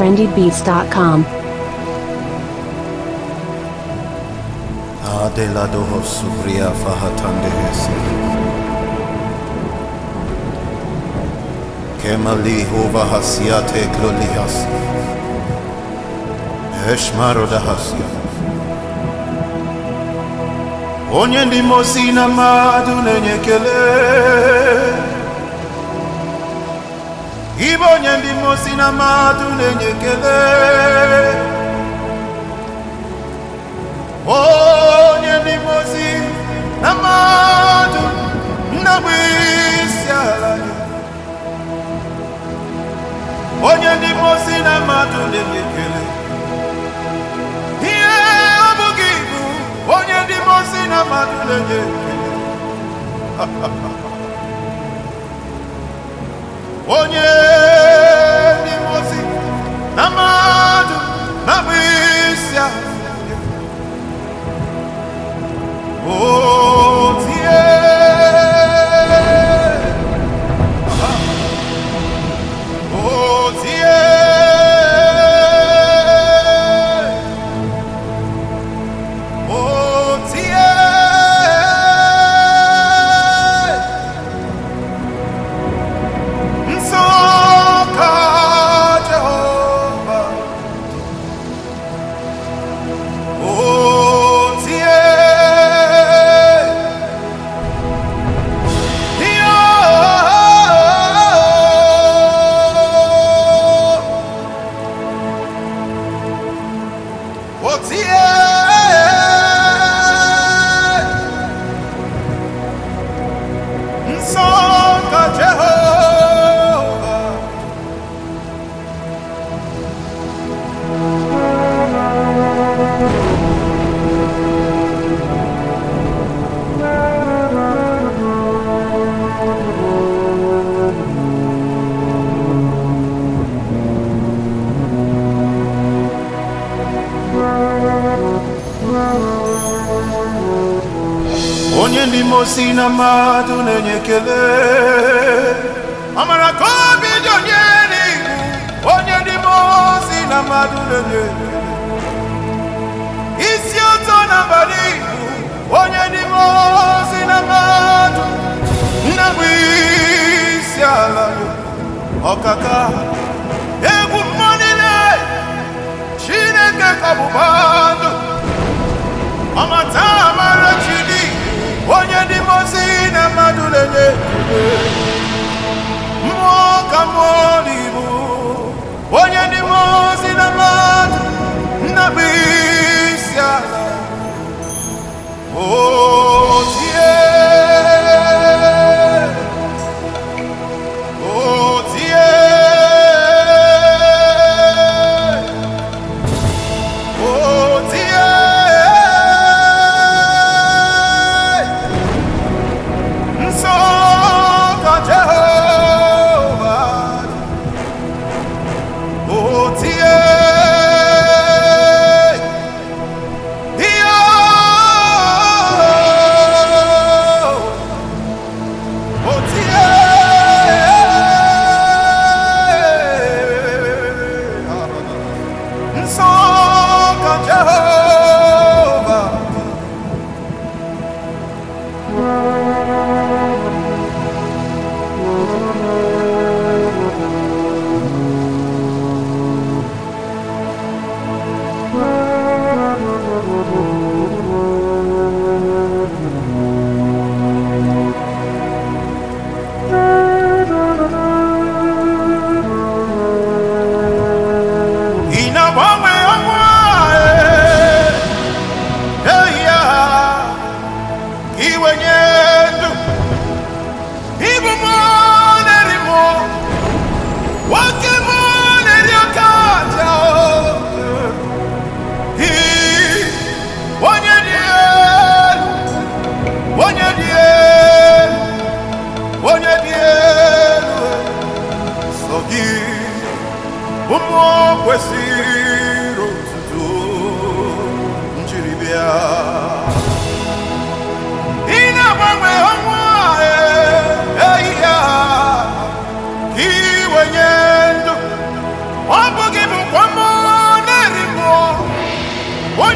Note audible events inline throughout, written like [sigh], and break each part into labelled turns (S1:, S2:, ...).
S1: na Adelaide Husserl, rịị afọ ha taa nde ha esi. Kemalie Huber ha sie atọ eklonye ya sie. Onye ndị mozina Madu na-enyekere Ibe onye ndị mmụọ si na mmadụ na-enye ekele onye ndị mmụọ si na mmadụ nnabụ isi ala onye ndị mmụọ si na mmadụ na-enye ihe ọ bụghị ibu onye ndị mmụọ si na mmadụ na-enye [laughs] onye See ya! si na mmadụ na-enye ekele amara ka obi dị onye n'ihu onye ndị mmụọ si na mmadụ na-enye isi ụtọ na abalị ihu onye dị ndị mmụọ Lord.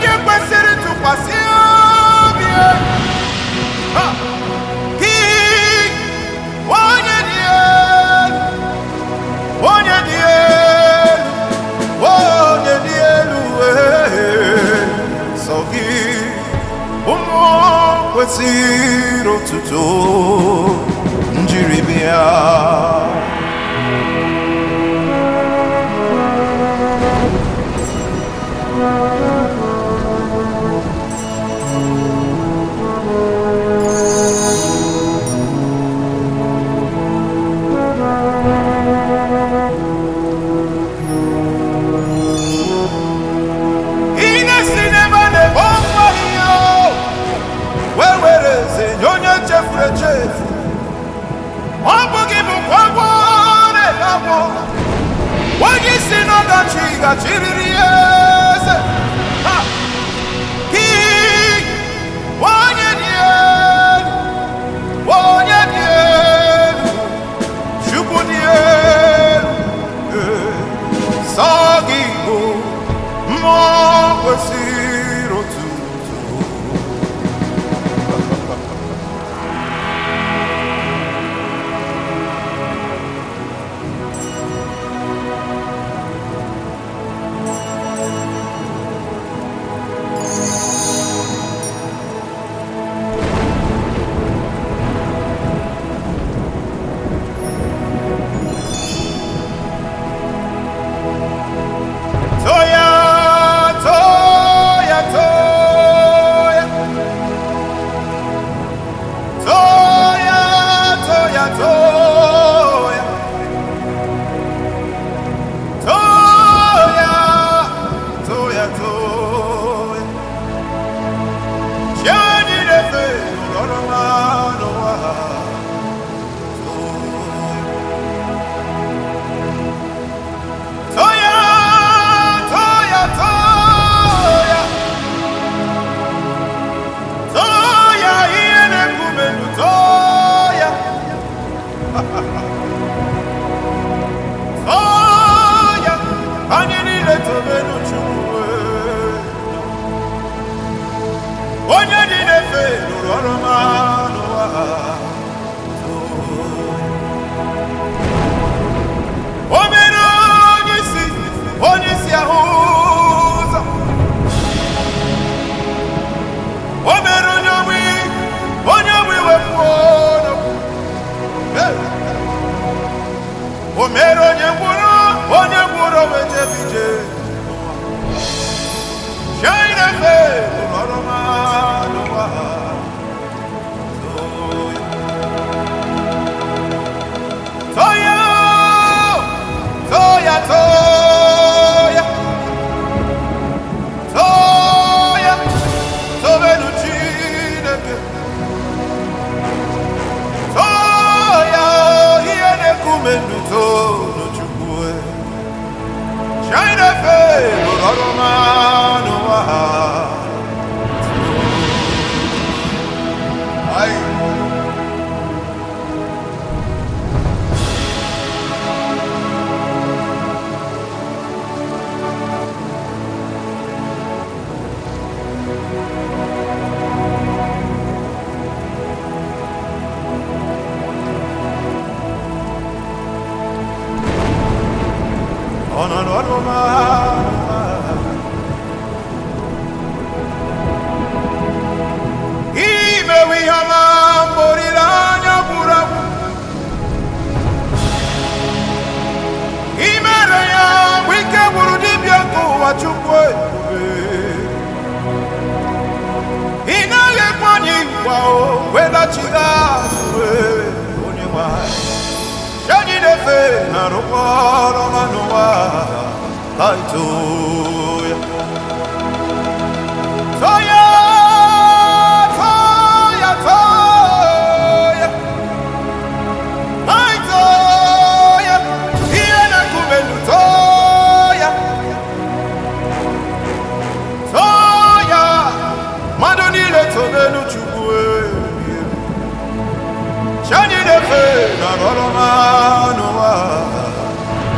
S1: onye kwesịrị ntụkwasị obi gị onye dị elu onye dị elu onye dị elu sọ gị ụmụ kwesịrị otuto njiri bịa chefuru echefu ọ bụghị bụkwa agwọ na-ele agwọ onye isi n'ọdachi gachiriri ya eze Shadi Refe, Lorana, Noah. na-arụaụma naụwa a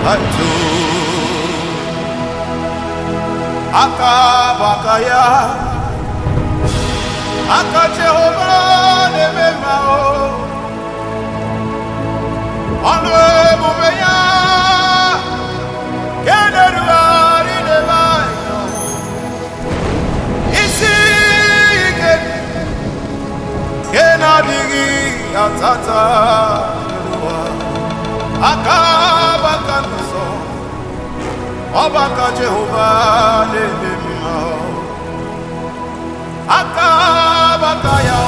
S1: hatu aka ya aka jehova na-eme o ọnụ emume ya ka isi ike ke na-adịghị atata aka ọgbakọ Jehova na-eme mma aka agbata ya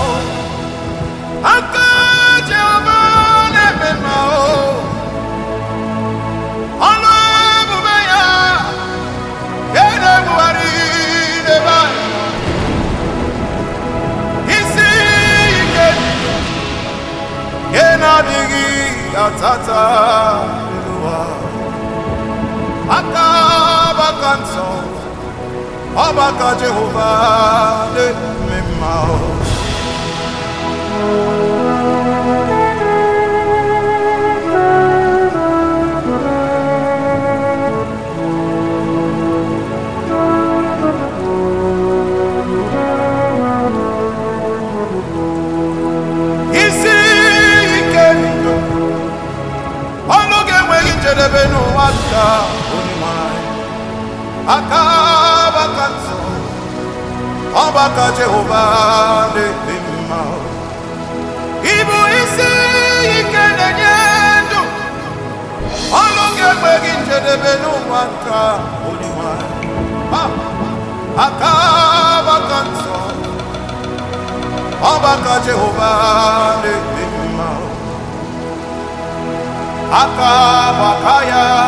S1: ọgbakọ Jehova ọgbakọ Jehova na-eme mma ịbụ isi ike na-enye ndụ ọnụ ga-egbe gị njedebe n'ụwa nka onyenwe aka ọgbakọ nsọ ọgbakọ Jehova na-eme mma aka ọgbakọ ya